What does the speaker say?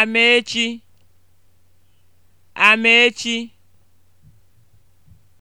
Amechi Amechi